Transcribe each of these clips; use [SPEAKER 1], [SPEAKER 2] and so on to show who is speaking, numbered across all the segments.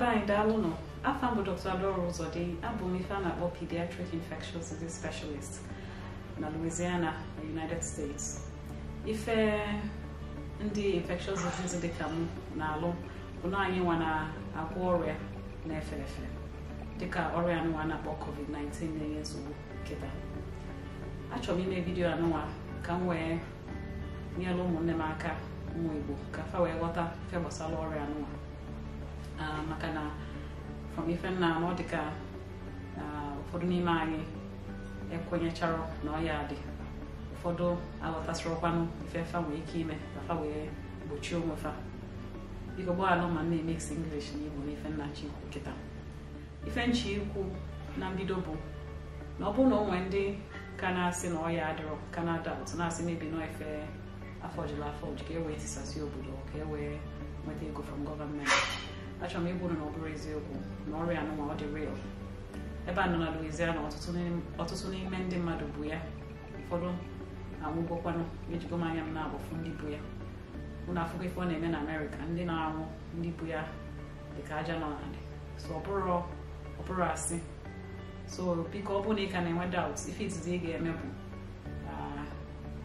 [SPEAKER 1] ebe anyị daalụ nọ afọ bụ Dr. ụzọ dị abụ m ife a na-akpọ pediatric infectious disease specialist na Louisiana United States ife ndị infectious disease dị ka m na-alụ bụ na anyị nwa na-agwọ ọrịa na-efe efe dịka ọrịa anụnwa na-akpọ COVID-19 na-enye nsogbu nkịta achọrọ m ime vidiyo anụwa ka m wee nyere ụmụnne m aka ụmụ Igbo ka fa wee ghọta fe gbasara ọrịa anụwa. Ah, maka na from ife nna na ọ dịka ụfọdụ n'ime anyị ekwenyechara na ọ ya dị ụfọdụ aghọtasịrọkwanụ ife fa nwee ike ime ka fa wee gbochie onwe fa biko gbaghara ma na-emesi English na Igbo na ife nna chikwu nkịta ife nchi ikwu na mbido bụ na ọ bụrụ na onwe ndị ka na-asị na ọ ya adịrọ ka na na-asị mebi na efe afọ jula afọ ji ka e wee tisasị obodo ka e wee nweta ego from gọọmenti achọrọ m ịbụrụ na ọ bụrụ eziokwu na ọrịa anụnwa ọ dị real ebe a nọ na Louisiana ọtụtụ n'ime ndị mmadụ bụ ya ụfọdụ anwụgokwanụ ejigo m anya m na-abụfu ndị bụ ya mụ na afụgo ife ọ na-eme na Amerịka ndị na-anwụ ndị bụ ya dịka aja nọ n'ala so ọ bụrụ asị so biko ọ bụrụ na ị ka na-enwe daut ife izizi ị ga-eme bụ uh,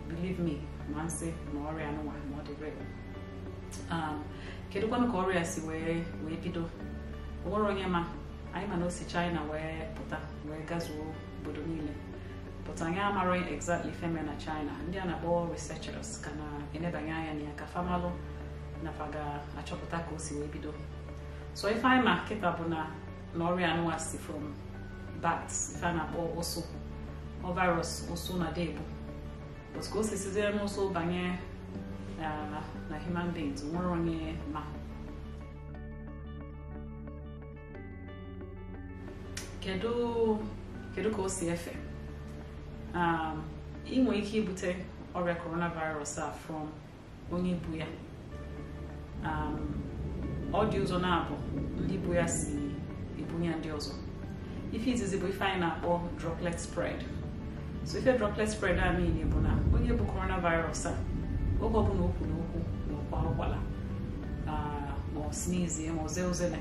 [SPEAKER 1] believe me ma nsị na ọrịa anụnwa ma ọ dị real Um, kedụkwanụ ka ọrịa si wee wee bido onwere onye ma anyị ma na o si china wee pụta wee gazuo obodo niile pụta anyị amaghị exactly feme na china ndị a na-akpọ researchers ka na-enebanye anya na ya ka famalụ nafa ga-achọpụta ka o si wee bido so ife anyị ma kịta bụ na na ọrịa anụwa si from bats ife a na-akpọ ụsụ ọ virus ụsụ na debu but ka o si sizie n'ụsụ banye na, na human beings nwere onye ma kedu ka o si efe um, ị nwere ike ibute ọrịa coronavirus a from onye bu ya um, ọ dị ụzọ na-abụ ndị bu ya si ya ndị ọzọ ife izizi bụ ife anyị na-akpọ droplet spread so ife droplet spread a niile bụ na onye bụ coronavirus a oge ọbụla o kwuru okwu na ụkwa ụkwala ma ọ snezie ma ọ zee uzele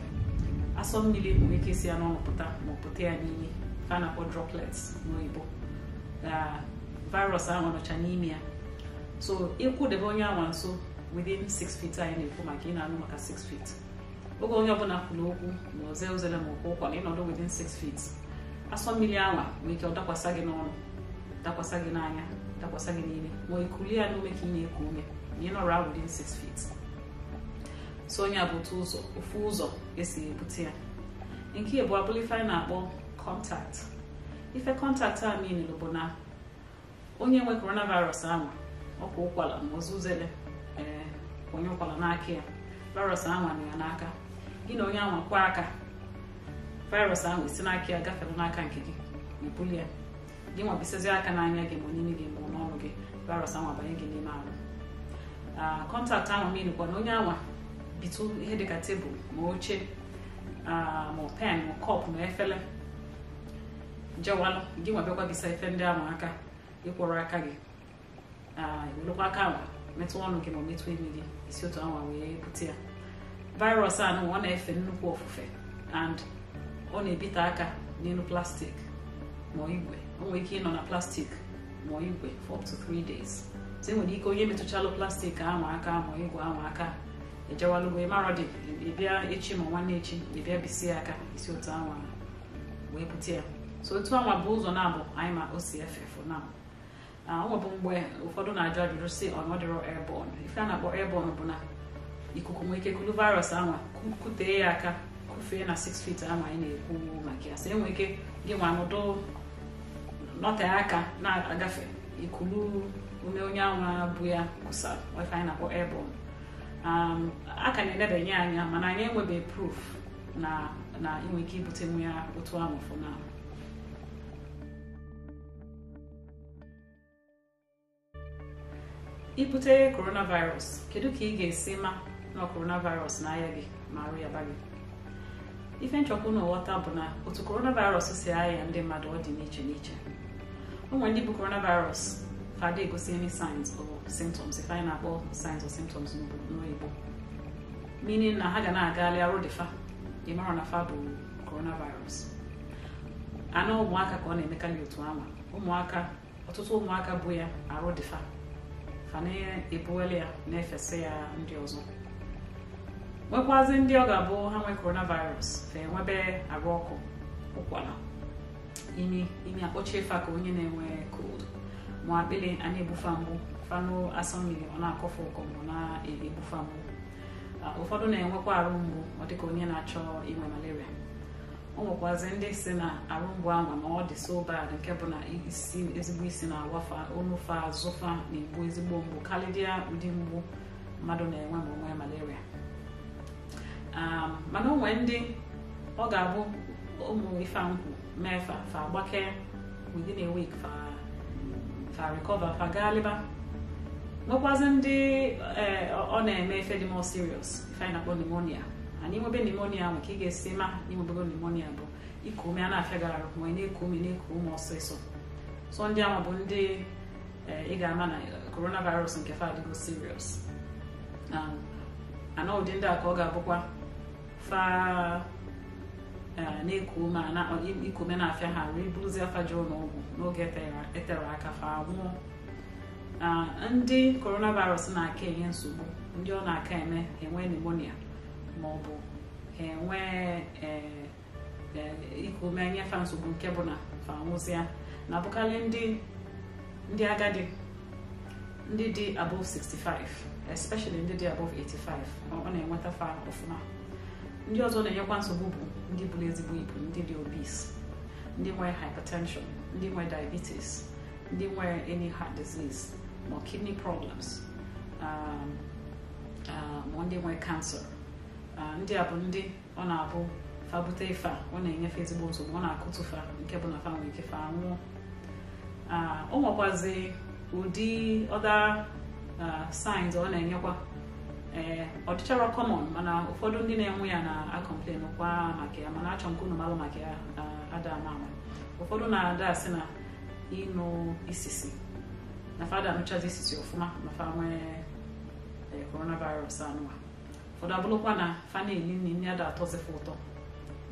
[SPEAKER 1] asọ mmiri nwere ike si ya n'ọnụ pụta ma ọ pụta ya n'imi a na-akpọ droplets n'oyibo virus ahụ nọcha n'ime ya so ịkwụdebe onye anwa nso within 6 feet anyị na-ekwu maka ị na-anụ maka 6 feet oge onye ọbụla kwuru okwu ma oze ozele ma okwu ụkwa na ịnọdụ within 6 feet asọ mmiri anwa nwere ike ọ dakwasa gị n'ọnụ dakwasa gị n'anya takosa binini moikulia lume kinye kume nino around six feet so onye ụzọ ofu ụzọ esi ebute ya nke na-akpọ kọntakt ife kọntakt a minil bụ na onye nwe coronavirus ahụ ọkwa ụkwala ma ozuzele ee onye ụkwala n'aka ya virus ahụ anụ ya n'aka gị na onye aka virus ahụ esi n'aka ya gafere n'aka nke gị ya gị aka n'anya gị ma onye gị mgbe gị virus ahụ abanye gị n'ime ahụ kọntaktị ah, ahụ m ịnụkwa na onye anwa bitu ihe dịka tebụl ma oche ah, ma pen ma kọpụ ma efere jewalụ gị nwa bịakwa bisa efe ndị ahụ aka ịkwọrọ aka gị ewelekwa ah, aka ahụ metụ ọnụ gị ma metụ imi gị isi otu anwa wee bute ya virus a ọ na-efe nnukwu ofufe and ọ na-ebite aka n'elu plastik ma igwe o nwere ike ịnọ na plastik mụọ igwe for to 3 days so e nwere ike onye metụchalụ plastik ahụ aka ma igwe ahụ aka ejewalụgo ịmarọdị ịbịa echi ma nwanne echi ịbịa bisie aka isi otu anwa wee bute ya so otu anwa bụ ụzọ na-abụ anyị ma o si efe for now ọ mgbe ụfọdụ na-ajụ ajụjụ si ọnọdịrọ airborne ife a na-akpọ airborne bụ ah, ah, na ikuku nwee ike kulu virus anwa kutee ya aka kufee na 6 feet anwa anyị na-ekwu maka ya so enwee ike gị nwa anọdụ nọte um, aka na-agafe ikulu ume onye anwa bụ ya kusa wefe na-akpọ airborne a ka na-edebanye anya mana anyị enwebeghị proof na na inwe ike ibutenwu ya otu ahụ fụnahụ ibute coronavirus kedu ka ị ga-esi ma na coronavirus na-aya gị ma arụ ya gị ife nchọkwu na nghọta bụ na otu coronavirus si ahịa ndị mmadụ ọ dị n'iche n'iche ụmụ ndị bụ coronavirus ka dị egosi any signs or symptoms if anyị na-akpọ signs or symptoms n'oyibo meaning na ha ga na-agagharị arụ dị fa ịmara na fa bụ coronavirus anụ ụmụaka ka ọ na-emekarị otu ama ụmụaka ọtụtụ ụmụaka bụ ya arụ dị fa fa na-ebuwele ya na-efesa ya ndị ọzọ nwekwazị ndị ọ ga-abụ ha nwee coronavirus fa enwebe arụ ọkụ ụkwara ime ime akpọchie fa ka onye na-enwe cold ma akpịrị a na-egbufa mgbu fanụ asọ ọ na akọfọ ụkọ mgbe na-egbufa mbụ. ụfọdụ na-enwekwa arụ mgbu ọ dịka onye na-achọ inwe malaria ọ nwekwazi ndị si na arụ mgbu anwa ma ọ dị so bad nke bụ na isi ezigbo isi na-agwafa onufa azụfa na-egbu ezigbo mgbu kalidia ụdị mgbu mmadụ na-enwe ma onwe malaria mana onwe ndị ọ ga-abụ ụmụ ife nkwụ mee fa fa gbakee within a week fa fa recover fa gaa leba nwekwazi ndị eh, ọ na-eme efe dị more serious ife anyị na-akpọ pneumonia anyị nwebe pneumonia nwere ka ị ga-esi ma inwebego pneumonia bụ iku ume a na gara arụ ma na-eku ume na-eku ume ọsịsọ so ndị ahụ bụ ndị eh, ị ga-ama na coronavirus nke fa adịgo serious ana ụdị ndị a ka ọ ga-abụkwa fa Eh, na-ekuo na-afịa ha wee bụrụzie afa jee n'ọgwụ n'oge etere e aka fa nwụọ ndị coronavirus na-aka enye nsogbu ndị ọ na-aka eme enwe pneumonia ma ọ bụ ha enwe eh, eh, iku ume nsogbu nke bụ na fanwụzia na-abụkarị ndị agadi ndị dị above 65 especially ndị dị above 85 ọ na-enweta fa ọfụma ndị ọzọ na-enyekwa nsogbu bụ ndị buru ezigbo ibu ndị dị obese ndị nwere hypertension ndị nwere diabetes ndị nwere any heart disease ma kidney problems um, um, ma ndị nwere cancer um, ndị a bụ ndị ọ na-abụ fa ife ọ na-enyefe ezigbo nsogbu ọ na akụtụfa nke bụ na fa nwere ike fa o nwekwazi ụdị ọda uh, signs ọ na-enyekwa eh ọtụcha common mana ụfọdụ ndị na-enwe ya na-akọmplen kwa maka ya mana achọ nke malụ maka ya ada ama ụfọdụ na-ada asị na ịnụ isisi na fada anụchazi isisi ọfụma na fa nwee eh, coronavirus anụwa ụfọdụ abụrụkwa na fa na-eli nri nri ada atọzife ụtọ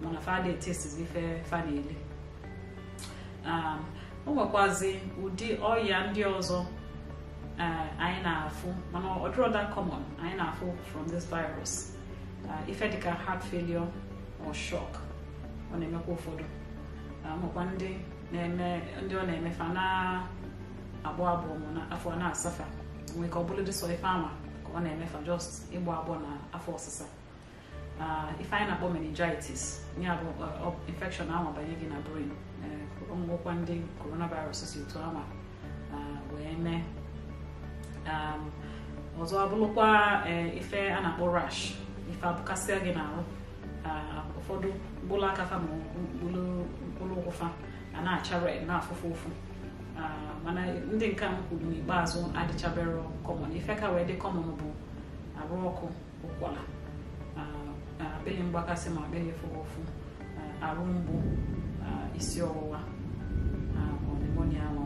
[SPEAKER 1] mana fa da etesizi ife fa na-eli o ah, nwekwazi ụdị ọya ndị ọzọ ah, na-afụ mana ọ dịrọ anyị na-afụ from this virus uh, ife dịka heart failure or shock ọ na-emekwa ụfọdụ makwa ndị na-eme ndị ọ na emefa fa na-agbọ agbọ afọ na-asafa nwee ka ọ bụrụ dị sọ ife ama ka ọ na-emefa just ịgba agbọ na afọ ọsịsa ife anyị na-akpọ meningitis ya abụ infection ahụ banye gị na brain ọmụgwọkwa uh, ndị coronavirus si otu ama uh, wee mee Um, ọzọ abụrụkwa eh, ife a na-akpọ rash ife abụkasịa gị n'ahụ uh, ụfọdụ mkpụrụ aka fa ma mkpụrụ ụkwụ a na-acha red na-afụfụ ụfụ uh, mana ndị nke m kwuru n'ikpeazụ adịchabere kọmọn ife ka wee dị kọmọn bụ arụ ọkụ ụkwara uh, akpịrị mgbakasi ma akpịrị ịfụrụ ụfụ arụ mgbu isi ọwụwa pneumonia